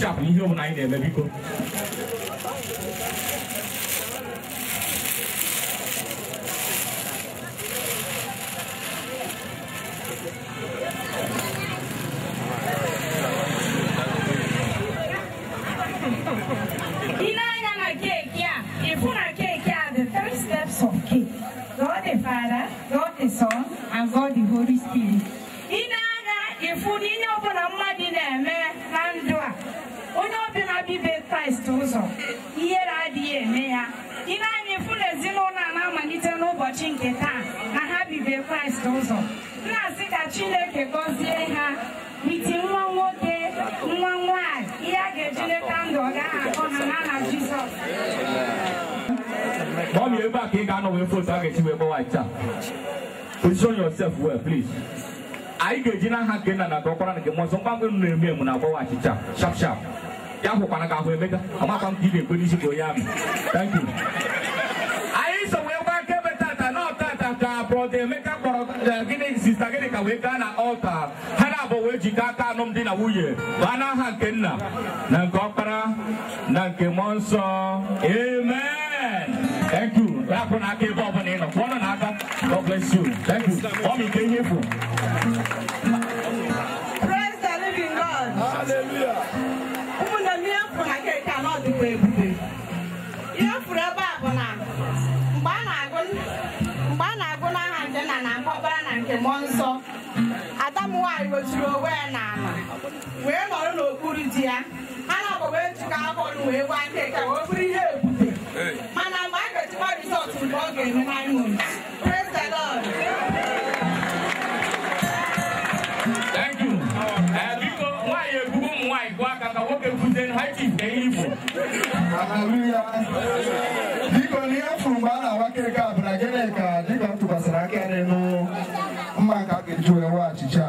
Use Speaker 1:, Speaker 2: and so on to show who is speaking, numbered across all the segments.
Speaker 1: kpochapụ ihe ọbụla anyị na-eme biko
Speaker 2: God the Holy Spirit. Ị na-aga ịfụ na ihe ọbụla mmadụ na-eme ibe kraịst ụzọ ihere adịghị eme ya ile anyị fụ ezinụlọ a na-amalite n'ụbọchị nke taa na ha bibe kraịst ụzọ na-asị ka chineke gọzie ha iti nwa nwoke nwa nwanyị ihe a ga-eji leta ndụ ọ gaghị akọ ha n'aha jizọs
Speaker 1: Mommy, you're back in foto with ga target. wee gbawa white. Position yourself well, please. I get in a hand and a doctor and a monster. I'm going to name na-eme emu na-agbawa it. Sharp, sharp. ya hụkwara ka ahụ emeka amakwa m ka ị ga-ekwe n'isi ka onye amị thank you anyị so wee gba nkebe tata na ọtata ka brọda emeka kpọrọ gịnị sista gịnị ka wee gaa na ọlta ha na-abụ wee jikọ aka alụmdi na nwunye baa n'aha nke nna na nke ọkpara na nke mmụọ nsọ amen thank you rapụ n'aka ebe ọbụla ị nọ pụọnụ n'aka god bless you thank you ọ bụ nke ihe bụ.
Speaker 3: wee ihe m ebe a bụ na mgbe a na-agụ n'aha nke nna na-akpọ na nke mmụọ nsọ ada m nwaanyị weturu onwe ya n'ala wee nọrọ n'okpuru di ya ha na-akpọ wee jikọ akọrụ wee gwa nke ka wee bụrụ ihe
Speaker 4: ebute
Speaker 3: mana mgbe a ga-echekwa rizọtụ mgbe ọ ga-eme nine months
Speaker 4: biko ibu biko n'ihe fụrụ mgbe a na-awa kirika bụ na gịnị ka dịka m tụkwasịrị aka n'elu mma ka a ga-eji wee wee achịcha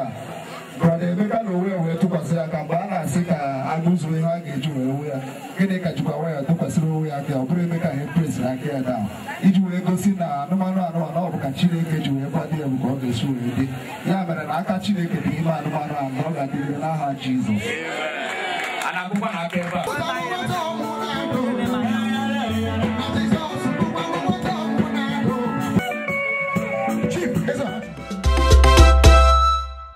Speaker 4: brada emeka na onwe wee tụkwasịrị aka mgbe a na-asị ka agụzuo ihe a ga-eji wee wee ya gịnị ka jikwa nwa ya tụkwasịrị onwe ya aka ọ bụrụ emeka ha epresịrị aka ya daa iji wee gosi na anụmanụ anụmanụ ọ bụ ka chineke ji wee kwado ya ka ọ ga-esi wee dị ya mere na aka chineke dị ime anụmanụ mgbe ọ ga adịrị n'aha jizọs anabukwa na pepa.